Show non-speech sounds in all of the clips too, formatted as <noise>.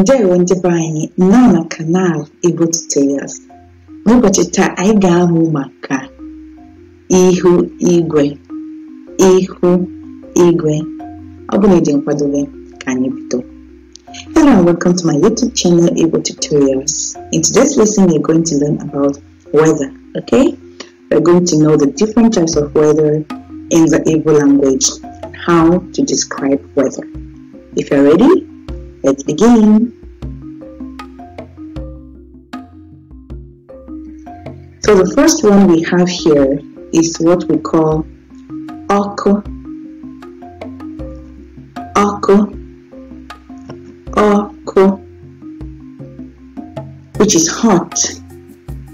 nje ndị be anyị nọ na kanal Igbo Tutorials n'ụbọchị taa anyị ga-amụ maka ihu igwe ihu igwe ọ bụla ịdị nkwadobe ka anyị bido Hello and welcome to my YouTube channel Igbo Tutorials. In today's lesson we're going to learn about weather, okay? We're going to know the different types of weather in the Igbo language, how to describe weather. If you're ready, Let's begin. So the first one we have here is what we call "oko, oko, oko," which is hot.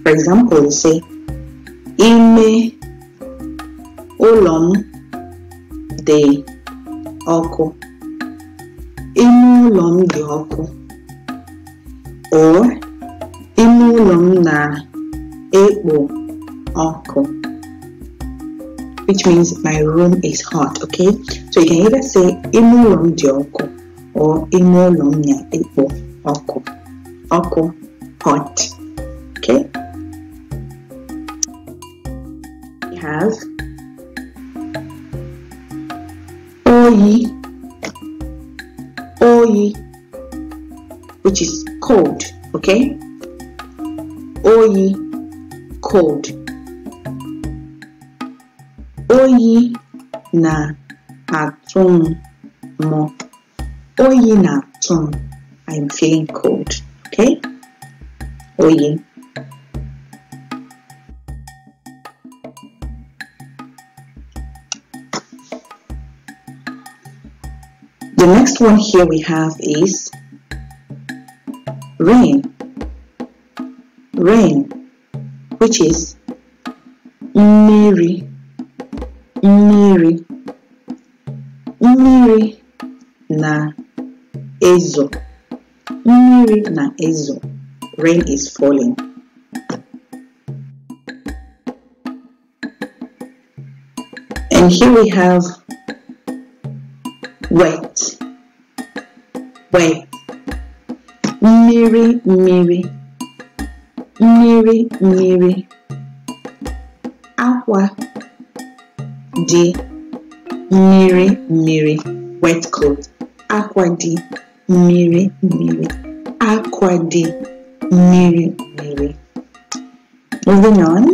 For example, you say ime olom m oko." ime ụlọ m dị ọkụ or ime ụlọ m na-ekpo ọkụ which means my room is hot okay so you can either say ime ụlọ m dị ọkụ or ime ụlọ m na-ekpo ọkụ ọkụ hot okay we have oyi OE, which is cold, okay? OE, cold. Oyi na-atụ mo. Oyi na-atụ I'm feeling cold, okay? Oyi. The next one here we have is rain, rain, which is Mary, Mary, Mary na ezo, Mary na ezo. Rain is falling. And here we have Wait. Wait. Miri, Miri. Miri, Miri. Aqua. D. Miri, Miri. Wet cloth. Aqua D. Miri, Miri. Aqua D. Miri, Miri. Moving on.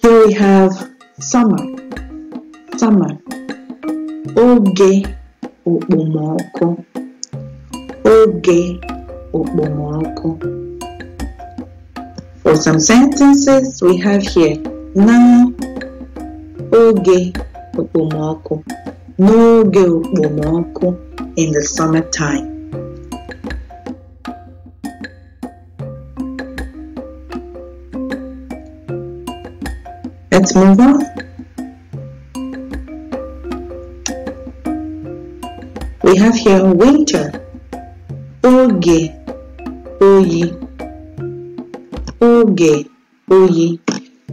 Here we have summer summer oge okpomọkụ oge okpomọkụ for some sentences we have here na oge okpomọkụ n'oge okpomọkụ in the summertime Let's move on. We have here winter, oge, oyi, oge, oyi.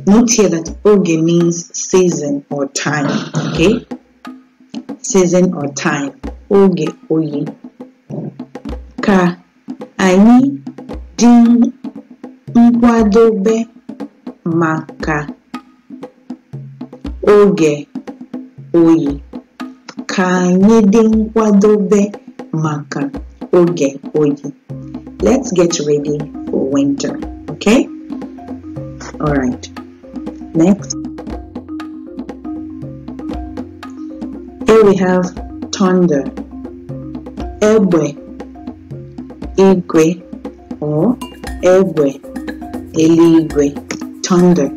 Note here that oge means season or time, okay? Season or time, oge, oyi. Ka anyị dị nkwadobe maka oge oyi ka anyị dị nkwadobe maka oge oyi let's get ready for winter okay all right next here we have thunder egbe igwe or egbe eluigwe thunder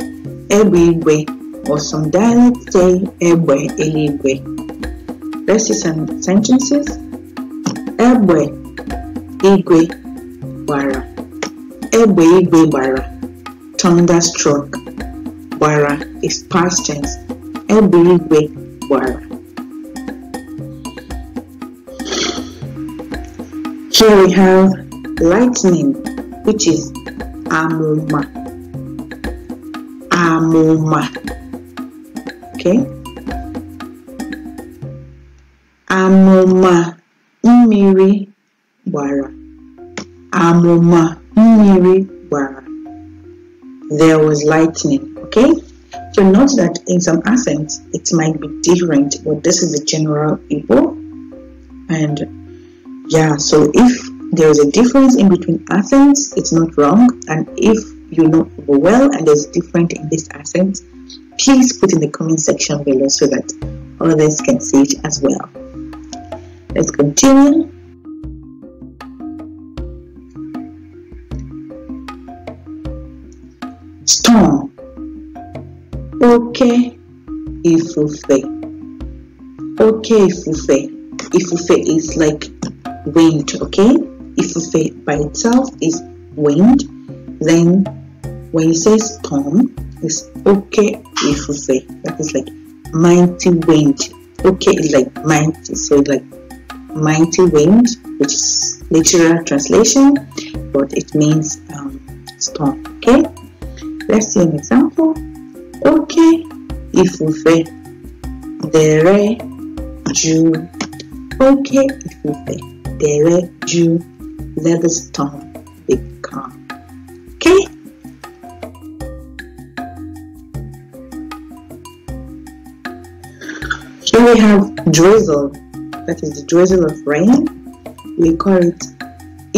egbe igwe ọsọndalite egbe eluigwe Let's see some sentences. Egbe igwe bara. Egbe igwe bara. Thunderstruck bara is past tense. Egbe igwe bara. Here we have lightning, which is amuma. Amuma okay amụma mmiri gbara amụma mmiri gbara there was lightning okay so note that in some accents it might be different but this is the general people. and yeah so if there is a difference in between accents it's not wrong and if you know well and there's different in this accent please put in the comment section below so that others can see it as well. Let's continue. Storm Okay, ifufe Okay, ifufe Ifufe is like wind, okay? Ifufe by itself is wind. Then when you say storm, it's okay if say That is like mighty wind. Okay is like mighty, so like mighty wind, which is literal translation, but it means um, storm. Okay, let's see an example. Okay if ifufe dere juu. Okay ifufe dere juu. Let the storm be calm. Okay. we have drizzle, that is the drizzle of rain. We call it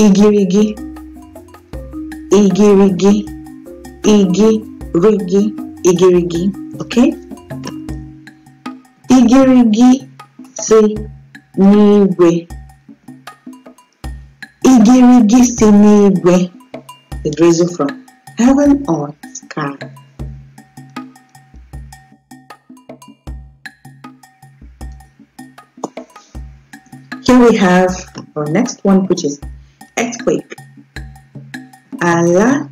igirigi, igirigi, igirigi, igirigi. Okay? Igirigi si niwe. Igirigi si niwe. The drizzle from heaven or sky. we have our next one, which is earthquake. Ala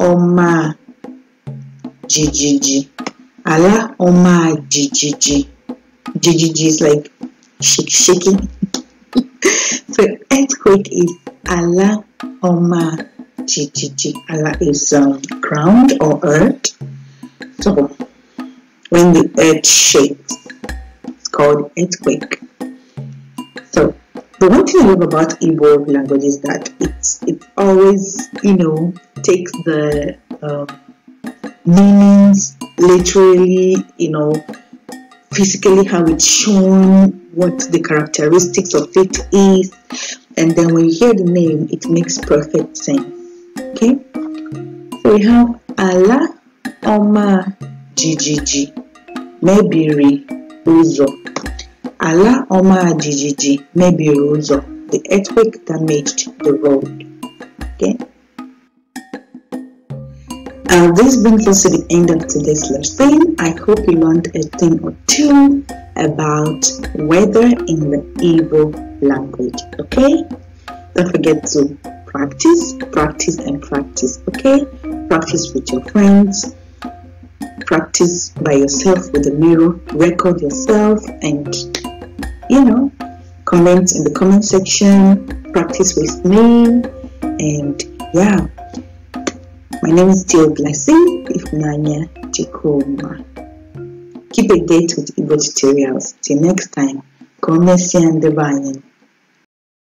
ọma jijiji. Ala ọma jijiji. Jijiji is like shake, shaking. <laughs> so earthquake is ala ọma jijiji. Ala is um, ground or earth. So when the earth shakes, it's called earthquake the one thing I love about Igbo language is that it's it always you know takes the um, meanings literally you know physically how it's shown what the characteristics of it is and then when you hear the name it makes perfect sense okay so we have Allah Oma GGG Mebiri Uzo Ala Omar Jijiji Mebiri Ụzọ, the earthquake damaged the road. Okay. Uh, this brings us to the end of today's lesson. I hope you learned a thing or two about weather in the Igbo language. Okay? Don't forget to practice, practice, and practice. Okay? Practice with your friends, practice by yourself with a mirror, record yourself, and you know, comment in the comment section, practice with me, and yeah. My name is Dio Blessing Ifunanya Chikoma. Keep a date with Igbo tutorials. Till next time, come and see and divine.